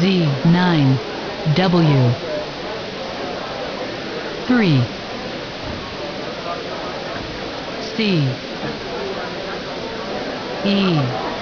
Z9 W 3 C E